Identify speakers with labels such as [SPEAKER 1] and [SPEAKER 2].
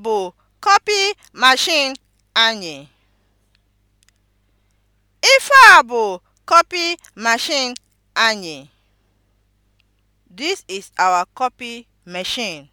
[SPEAKER 1] bụ kọpị mashin anyị. Ife a bụ kọpị mashin anyị. This is our copy machine.